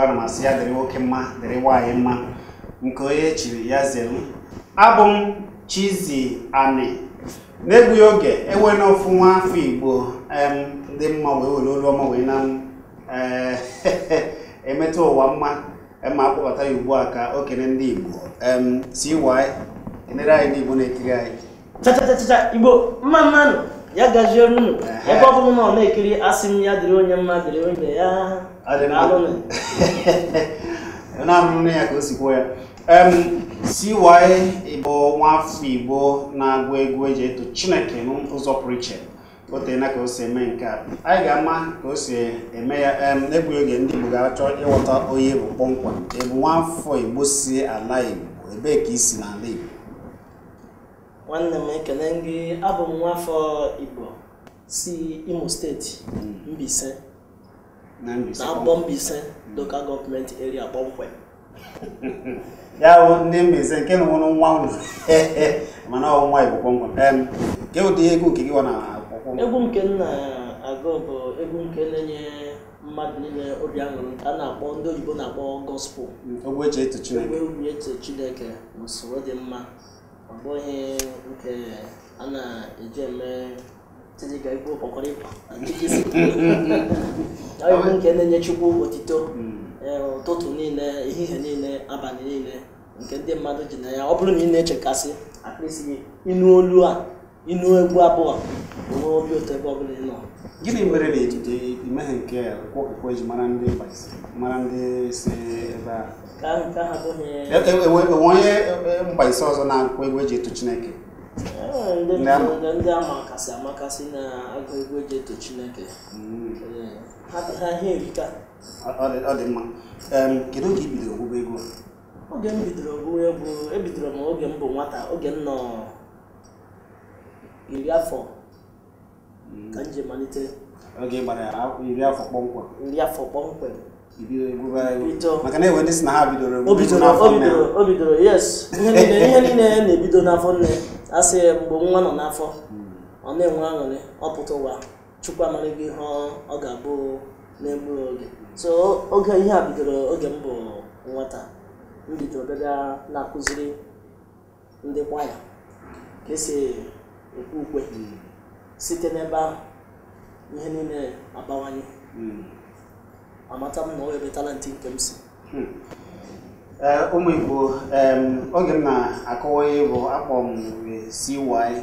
ụbara ma sị ya dịrị nwoke mma dịrị nwaanyị mma nke onye chiri ya zere abụ m Chizzy Ani n'egbughị oge enwe na ofu nwa afọ Igbo ndị mma wee were olu ọma wee na eh, emetụ ụwa mma ma akpọbata ya ugbu a ka okenye ndị Igbo si CY enere anyị ndị Igbo na-ekiri anyị chachachacha Igbo mma mmanụ ya gaziere unu ebe ọ bụrụ na na-ekiri asị m ya dịrị onye mma dịrị onye ya na ka o ya Igbo nwafọ Igbo na-agụ egwu eji eto Chineke n'ụzọ pụrụ iche otena ka o si eme nke a anyị ga-ama ka o si eme ya egwughị oge ndị Igbo ga-achọ ịghọta onye bụ kpọmkwem ebu nwafọ Igbo si ala Igbo ebee ka isi n'ala Igbo nwanne m ekele gị abụ m nwafọ Igbo si Imo steeti Mbaise na Mbaise local gọọmenti area kpọmkwem ya bụ ndị Mbaise nke nwụrụ nwa ụlọ mana ọ nwa Igbo kpọmkwem nke ụdị egwu nke gị na akwụkwọ egwu nke nna agụ bụ egwu nke na-enye mmadụ niile obi aṅụrị a na-akpọ ndị oyibo na-akpọ gospel ogwe eche etu Chineke ogwe eche Chineke n'usoro dị mma ọ bụghị nke a na-eji eme tịdịga igbo kpọkọrọ ịkwa abụ nke na-enye Chukwu otito hmm. e, ụtụtụ niile ehihie niile abalị niile nke ndị mmadụ ji na ya ọ bụrụ na ị na-echekasị akpịsị gị ịnụ olu a ịnụ egwu abụọ onwe obi ụtọ ebe ọ bụla ị nọ gịnị mere na ejije imeghe nke kwụkwọ ji mara ndị mara ndị si ebe a enwe e, e, onye mgbaise ọzọ na-akwụkwọ egwu eji eto Chineke ndị ndị amakasị amakasị na agụ egwu eji eto Chineke mm. ha ihe erika ọ dị mma kedu oge i bidoro ogwụgwọ egwu oge m bidoro ogwụgwọ egwu ebidoro m oge m bụ nwata oge m nọ iri afọ mm. ka m ji malite oge gbara iri afọ kpọmkwem iri afọ kpọmkwem maka na enwe ndị si na ha bidoro o bidoro yes ihe niile na-ebido n'afọ nne asị mgbe nwa nọ n'afọ ọ na-enwe aṅụrị ọpụta ụwa chukwu amara gị ihe ọ ga-abụ n'egbu oge so oge ihe a bidoro oge m bụ nwata m bidoro na-akụziri ndị kwaya ka esi ekwe ukwe site n'ebe ahụ ihe niile abawanye hmm. amata m na o webetala ntị nke m si hmm. Eh, ụmụ igbo oge m na-akọwa ihe bụ akpọ m CY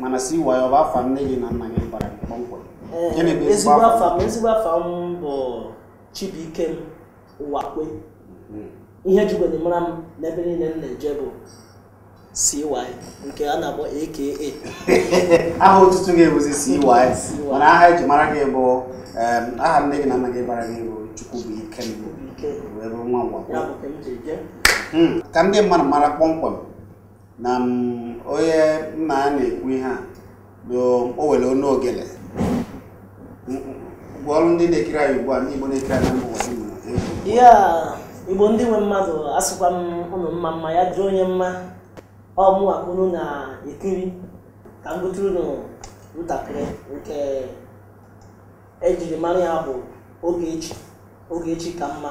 mana CY ọ bụ afa nne gị na nna gị bara kpọmkwem eh, ezigbo afa m ezigbo afa m bụ Chibuike m Ụwakwe mhm. ihe jigwere mara m n'ebe niile m na-eje bụ CY nke a na-akpọ AKA aha otutu gị bụzi CY mana aha eji mara gị bụ aha nne gị na nna gị bara gị bụ chukwu bụ ike m wee bụrụ nwa ngwakwa ka ndị hmm. mmadụ mara kpọmkwem na mm, onye nna ya na-ekwu ihe a o were onu ogele ọrụ ndị na-ekiri anyị ugbu a ndị Igbo na-ekiri anyị mbụ ya Igbo ndị nwe mmadụ asụkwa m ụnụ mma mma ya jụọ onye mma ọmụwa unu na-ekiri ka m gụtụrụ unu ntakịrị nke ejiri mara ya bụ Ogechi Ogechi ka mma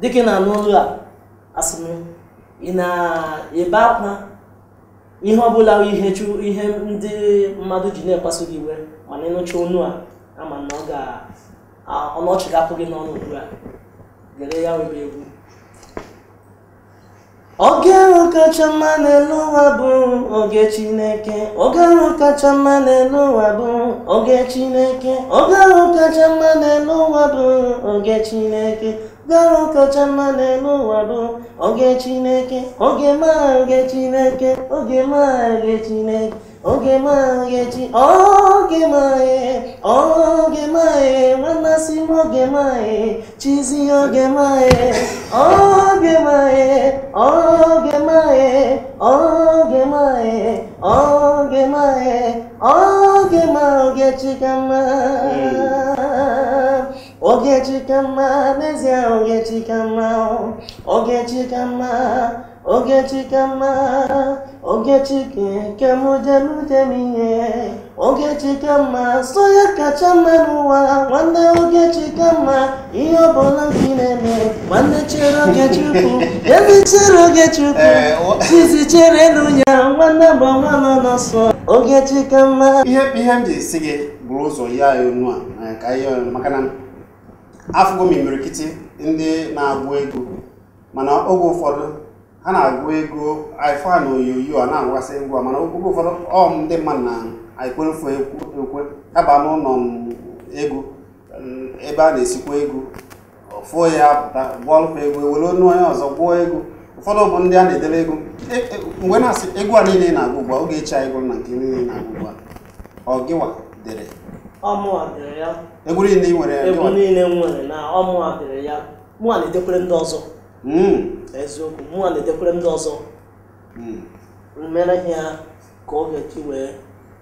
dịka na-anụ a asị ị na-ebe akwa ihe ọbụla ihe ndị mmadụ ji na ekwaso gị iwe mana ịnụcha onu a ama na ọ ga ọnụ ọchị ga n'ọnụ ugbu a gere ya webe egwu oge ahụ kacha mma n'elu ụwa bụ oge chineke oge ahụ kacha mma n'elu ụwa bụ oge chineke ahụ kacha mma n'elu ụwa bụ oge chineke oge oge chineke oge oge chineke oge 오게 마에지 오게 마에 오게 마에 만나시 오게 마에 지지 오게 마에 오게 마에 오게 마에 오게 마에 오게 마에 오게 마오게 지가마 오게 지가마 내세 오게 지가마 오게 지가마 오게 지가마 Ogechike nke m dem dem ihe Ogechike mma so ya kacha mma n'ụwa nwanne Ogechike mma ihe ọbụla gị na-eme nwanne chere Ogechukwu ezi chere Ogechukwu tizi chere n'ụnya nwanne bụ nwa nọ n'ọsọ Ogechike mma ihe ihe m ji esi gị bụrụ ụzọ ya onu a ka ihe maka na afụgo m imirikiti ndị na-agụ ego, mana oge ụfọdụ a na-agụ ego ifa na oyoyo a na-agwasị ngwa mana oge ụfọdụ ọm ndị mmadụ na ekwefu ekwe aba n'ụlọ ego ebe a na-esikwa ego fụo ya apụta gụọlụkwa ego ewere onu onye ọzọ gwụọ ego ụfọdụ bụ ndị a na-edere ego e, e, mgbe na-asị ego a niile na-agụ ugbu a oge echi anyị na nke niile na-agụ ugbu a ọgịwa dere egwu niile nwere niile nwere na ọmụa dere ya mụ na-edekwere ndị ọzọ Hmm. eziokwu mụnwa na-edekwere ndị ọzọ hmm. mere ha ka ọ ga chi wee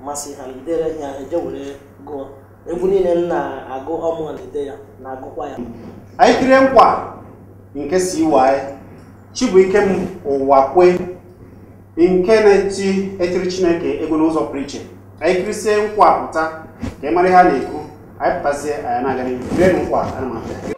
masị ha dere ha eje were gụọ egwu niile m na-agụ ọmụ na-ede ya na-agụkwa ya anyị kiri nkwa nke si iwe chi bụ ike m ụwa kwe nke na-eti etiri chineke ego n'ụzọ pụrụ iche anyị kirisie nkwa pụta ka ị mara ihe a na-ekwu anyị pụtazie anyị na-aga n'ihu nkwa ana m abịa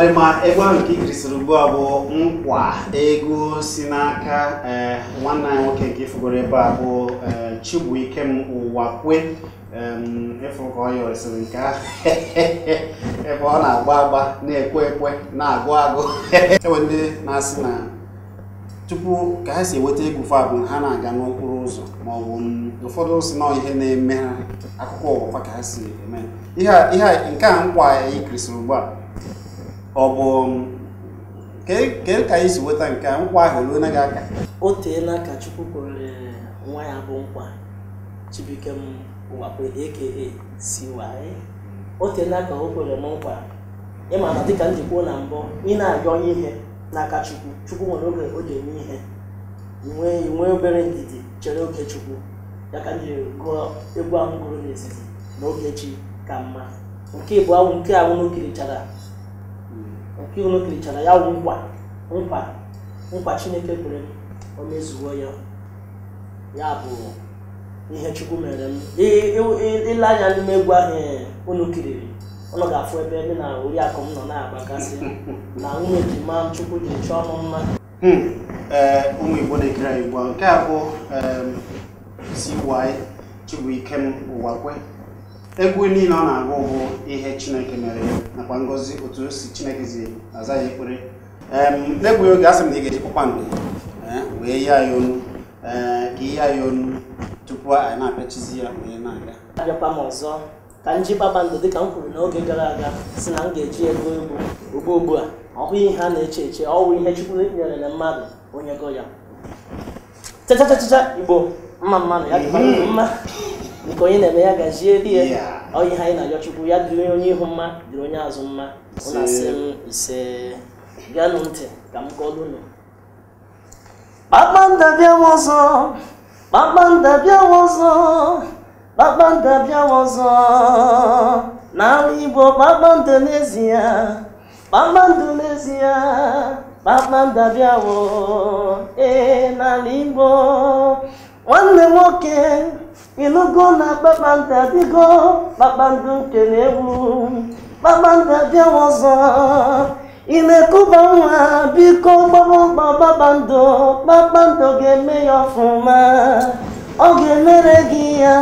ọdịma egwu nke ikirisiri ugbu a bụ nkwa ego si n'aka eh, nwanne anyị nwoke nke ifugoro ebe a bụ chibu eh, ike ụwa kwe Chibuikem Ụwakwe ịfụkọyọsiri nke ahụ ebe ọ na-agba agba na-ekwe ekwe na-agụ agụ ewe ndị na-asị na tupu ka ha si enweta ego fa bụ ha na-aga n'okporo ụzọ ma ọ bụ ụfọdụ si na ihe na-eme ha akụkọ ụwa ka ha si eme ihe a nke a nkwa ikirisiri ugbu a ọ bụ um, kee ka esi nweta nke a nkwa ahụ ruo gị aka o teela ka chukwu kwere nwa ya bụ nkwa chibuike m wakwe aka si waye o teela ka o kwere m nkwa ịma na dịka njikwa na mbụ ị na-arịọ ihe n'aka chukwu chukwu nwere oge o ji eme ihe nwee nwee obere ndidi chere oke chukwu ya ka m jiri gụọ egwu ahụ gụrụ n'etiti na ogechi ka mma nke bụ awụ nke ahụ n'okirichara nke unu kirichara ya wụ nkwa nkwa nkwa chineke kwere o ya ya bụ ihe chukwu mere m ile anya n'ime egwu ahụ unu e, kiriri unu ga-afụ ebe ebe na oriakụ m nọ na-agbagasị na nwunye ma chukwu ji chọọ m mma hmm, e, ụmụ igbo na-ekiri anyị nke a bụ CY Chibuikem Ụwakwe egwu niile ọ na-agụ bụ ihe chineke mere nakwa ngọzi otu o si chineke zi aza ya ekpere n'egbughị oge asị m na ị ga-eji kpakpando e, wee yie ya onu e, ka ihe ya onu tupu anyị na-apịachizi ya wee na-aga abịakwa m ọzọ ka m ji kpakpando dịka m kwuru n'oge gara aga si na m ga-eji ego egwu ugbu ugbu a ọ bụghị ihe a na-eche eche ọ bụ ihe Chukwu nyerere mmadụ onye go ya chachachacha Igbo mma mmanụ ya dịkwa mhm. mma nke onye na-eme ya gazie di ya ọ ihe anyị na-arịọ ya dịrị onye ihu mma dịrị onye azụ mma ụlọ m ise gaanụ ntị ka m kọọlụnụ kpakpando bịawa ọzọ kpakpando bịawa ọzọ bịawa ọzọ n'ala igbo kpakpando n'ezie kpakpando n'ezie kpakpando ee n'ala igbo nwanne nwoke ịnụgo na kpakpando adịgo kpakpando nke na-egwu kpakpando abịawa ọzọ ị na-ekụba nwa biko gbaba ụgbọ kpakpando kpakpando ga-eme ya ọfụma ọ ga-emere gị ya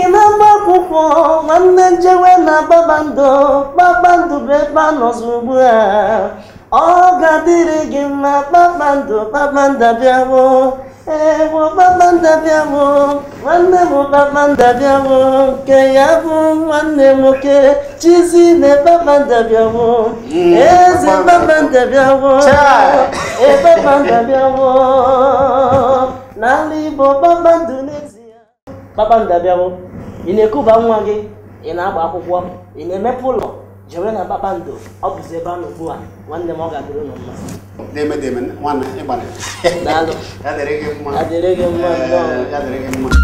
ị na-agba akwụkwọ nwanne njewe na kpakpando kpakpando bụ ebe a ugbu a ọ ga-adịrị gị mma kpakpando kpakpando abịawo ee kpọkpakpanda bịawo nwanne m kpakpanda bịawo nke ya bụ nwanne nwoke chizi na kpakpanda bịawo eze kpakpanda bịawo kpakpanda bịawo bụ igbo kpakpando n'ezie kpakpanda bịawo ị na-ekuba nwa gị ị na-agba akwụkwọ ị na-emepe ụlọ jewere na kpakpando ọ bụzi ebe a ugbu a nwanne m ọ ga-adịrị ụnụ mma na-eme na-eme nwanna ịgbalị adịrị gị mma